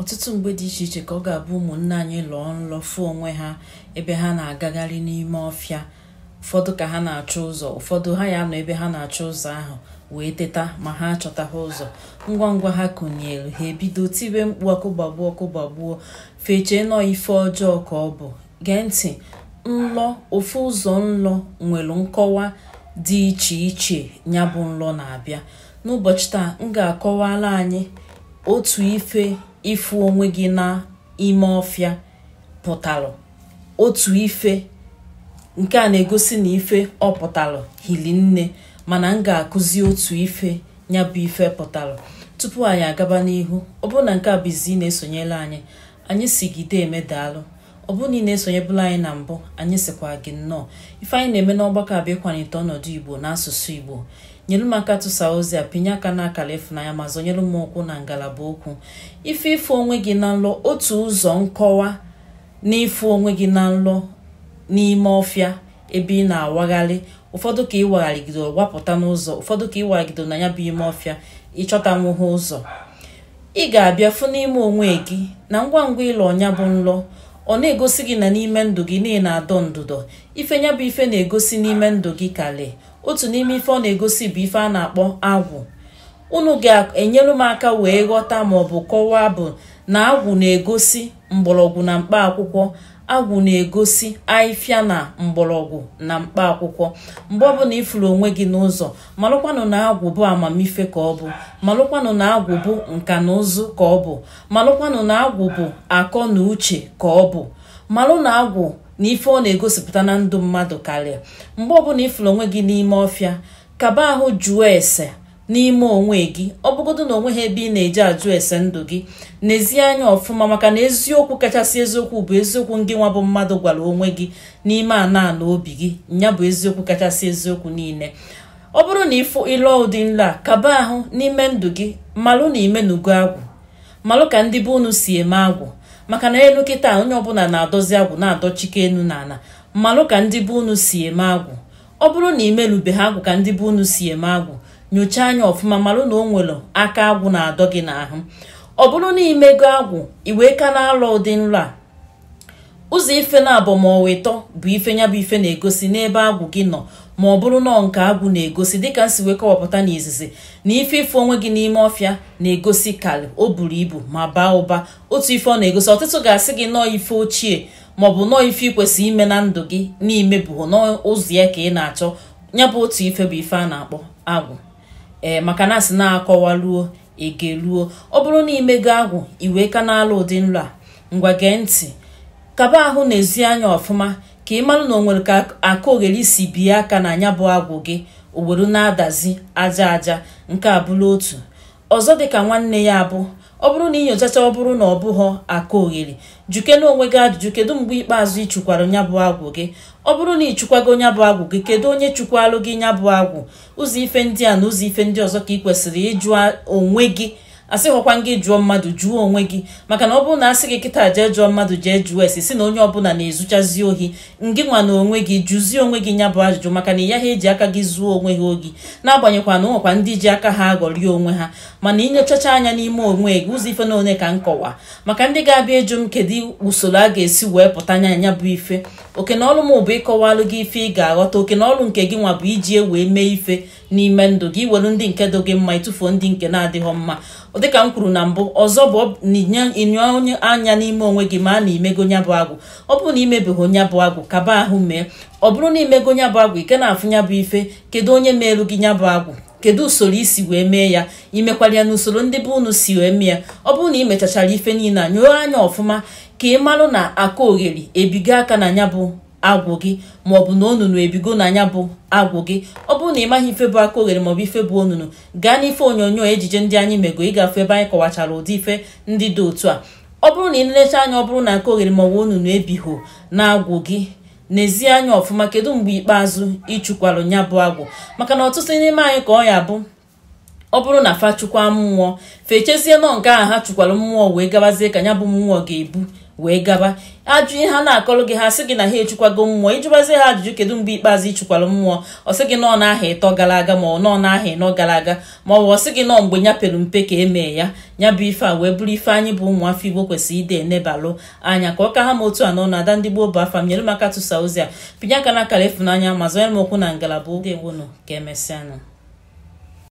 ọtụtụ mgbe dị iche iche ka ọ ga-abụ ụmụnne anyị lụọ nlọ fụ onwe ha ebe ha na-agagharị n'ime ọfịa ụfọdụ ka ha na-achọ ụzọ ụfọdụ ha ya nọ ebe ha na-achọ ụzọ ahụ wee teta ma ha ha ụzọ ngwa ngwa ha kụnyere ha ebido tibe mkpu ọkụ gbagbuo ọkụ gbagbuo fechee nọ ife ọjọọ ka ọ bụ gee ntị nlọ ofu ụzọ nlọ nwere nkọwa dị iche iche nya bụ nlọ na-abịa n'ụbọchị taa m ga akọwara anyị otu ife ịfụ onwe gị ime ọfịa pụtalụ otu ife nke a na-egosi na ife ọ pụtalụ hili nne mana m ga-akụzi otu ife ya bụ ife pụtalụ tupu anyị agaba n'ihu ọ bụrụ na nke a bụ izi na-esonyela anyị anyị sigide emedaalụ ọ bụrụ na ị na-esonyebụla anyị na mbụ anyị sịkwa gị nnọọ ife anyị na-eme n'ọgbakọ bụ ịkwanite ọnọdụ igbo na igbo nyere m aka tụsa ozi a pinye aka n'akara ịfụnanya ma zọnyere m ụkwụ na ngalaba okwu ife ife onwe gị na nlọ otu ụzọ nkọwa na ịfụ onwe gị na nlọ n'ime ọfịa ebe ị na-awagharị ụfọdụ ka ị wagharịgido wapụta n'ụzọ ụfọdụ ka ị wagharịgido na ya bụ ime ọfịa ịchọta nwụhụ ụzọ ị ga-abịa fụ n'ime onwe gị na ngwa ngwa ịlọ ọnya bụ nlọ ọ na-egosi gị na n'ime ndụ gị na ị na-adọ ndụdọ ife nya bụ ife na-egosi n'ime ndụ gị kale otu n'ime ife ọ na-egosi bụ ife a na-akpọ agwụ unu ga-enyere m aka wee ghọta maọbụ kọwaa bụ na agwụ na-egosi mgbọrọgwụ na mkpa akwụkwọ agwụ na-egosi ahịfịa na mgbọrọgwụ na mkpa akwụkwọ mgbe ọbụla ịfụrụ onwe gị n'ụzọ malụkwanụ na agwụ bụ amamife ka ọ bụ malụkwanụ na agwụ bụ nka na ụzụ ka ọ bụ malụkwanụ na agwụ bụ akọ na uche ka ọ bụ malụ na agwụ na ife ọ na-egosipụta na ndụ mmadụ karịa mgbe ọbụla ịfụrụ onwe gị n'ime ọfịa kaba ahụ jụọ ese n'ime onwe gị ọ bụgodo na onwe ha ebe ị na-eji ajụ ese ndụ gị n'ezie anya ọfụma maka na eziokwu kachasị eziokwu bụ eziokwu ngị nwa bụ mmadụ gwara onwe gị n'ime ana ana obi gị ya bụ eziokwu kachasị eziokwu niile ọ bụrụ na ịfụ ịlụọ ụdị nla a kaba ahụ n'ime ndụ gị malụ na imenugo agwụ malụ ka ndị be unu si eme agwụ maka na elu kịta onye ọbụla na-adọzi agwụ na-adọchike enu na ala mmalụ ka ndị be unu si eme agwụ ọ bụrụ na imelube ha agwụ ka ndị be unu si eme agwụ nyochaa anya ọfụma malụ na o nwere aka agwụ na-adọ gị n'ahụ ọ bụrụ na imego agwụ iwee ka na-alọ ụdị nlọ a ụzọ ife na-abụ ma ọwa ịtọ bụ ife nya bụ ife na-egosi n'ebe agwụ gị nọ ma ọ bụrụ nọọ nke agwụ na-egosi dịka nsi wee kọwapụta n'izizi na ife ife onwe gị n'ime ọfịa na-egosi kalị o buru ibu ma baa ụba otu ife ọ na-egosi ọtụtụ ga-asị gị nọọ ife ochie maọbụ nọọ ife ikwesị ime na ndụ gị n'imebughị ụzọ ya ka ị na-achọ nyabụ bụ otu ife bụ ife a na-akpọ agwụ ee maka na asị na akọwaruo egeluo ọ bụrụ na imego agwụ iwee ka na ụdị nlu a ngwa gee ntị kaba ahụ na ezi anya ọfụma ka ị mara na o nwere ka aka ogheri si bie aka na anya bụ agwụ gị ogboro na-adazi aja aja nke abụla otu ọzọ dịka nwanne ya abụ ọ bụrụ na inyochacha ọ bụrụ na ọ bụghọ aka ogheri na onwe gị ajụjụ kedu mgbe ikpeazụ ị chụkwara nyabụ bụ agwụ gị ọ bụrụ na ị chụkwago nya bụ agwụ gị kedu onye chụkwalụ gị nya bụ agwụ ụzọ ife ndị a na ụzọ ife ndị ọzọ ka ị kwesịrị ịjụ onwe gị asịghọkwa gị jụọ mmadụ jụọ onwe gị maka na ọ bụrụ na sị gị kịta jee jụọ mmadụ jee jụọ esi si na onye ọbụla na-ezuchazi ohi ngị nwa na onwe gị jụzie onwe gị nya bụ ajụjụ maka na ya ha eji aka gị zụọ onwe ha na n'agbanyekwa na ụnwekwa ndị ji aka ha aghọrie onwe ha mana inyochacha anya n'ime onwe gị ụzọ ife na one ka nkọwa maka ndị ga-abịa ịjụ m kedu usoro a ga-esi wee pụta anya anya bụ ife oke na ọlụ m bụ ịkọwalụ gị ife ị ga-aghọta oke na ọlụ nke gị nwa bụ iji e wee mee ife n'ime ndụ gị welu ndị nke dị gị mma ịtụfuo ndị nke na-adịghọ mma dịka m kwuru na mbụ ọzọ bụ ịnyụ onye anya n'ime onwe gị ma a na imego nya bụ agwụ ọ bụrụ na imebeghị nya bụ agwụ kaba ahụ mee ọ bụrụ na imego nya bụ agwụ ike na-afụ nya bụ ife kedu onye meelu gị nya bụ agwụ kedu usoro isi wee mee ya imekwara ya n'usoro ndị be unu si wee mee ya ọ bụrụ na imechachara ife niile a nyụọ anya ọfụma ka ị marụ na akụ ogheri ebigo aka na nya bụ agwụ gị maọbụ na onunu ebigo na anya bụ agwụ gị ọ bụrụ na ị maghị ife bụ aka oghere maọbụ ife bụ onunu gaa n'ife onyonyo ejije ndị anyị mego ịgafe ebe anyị kọwachara ụdị ife ndị dị otu a ọ bụrụ na ị lelechaa anya ọ bụrụ na aka oghere maọbụ onunu ebighọ na-agwụ gị n'ezie anya ọfụma kedu mgbe ikpeazụ ịchụkwarụ nya bụ agwụ maka na ọtụtụ n'ime anyị ka ọ ya bụ ọ bụrụ na fa chụkwa mmụọ fechezie nọ nke ahụ ha chụkwara mmụọ wee gabazie ka ya bụ mmụọ ga-ebu wee gaba ajụ ihe ha na-akọrọ gị ha sị gị na ha echukwago mmụọ ịjụbazi ha ajụjụ kedu mgbe ikpeazụ ịchụkwara mmụọ ọ sị gị na n'aha ịtọ gara aga ma ọ nọ n'aha ịnọ gara aga ma ọ bụ ọ gị nọọ mgbe nya pere mpe ka emee ya ya bụ ife a wee bụrụ ife anyị bụ ụmụafọ igbo kwesịrị ide enebalụ anya ka ọ ka ha ma otu anọ na ada ndị gboo bụ afa m nyere m aka tụsa ozi a pinye aka na akara efunanya ma zọnyere m okwu na ngalaba oge nwonu ka emesịanụ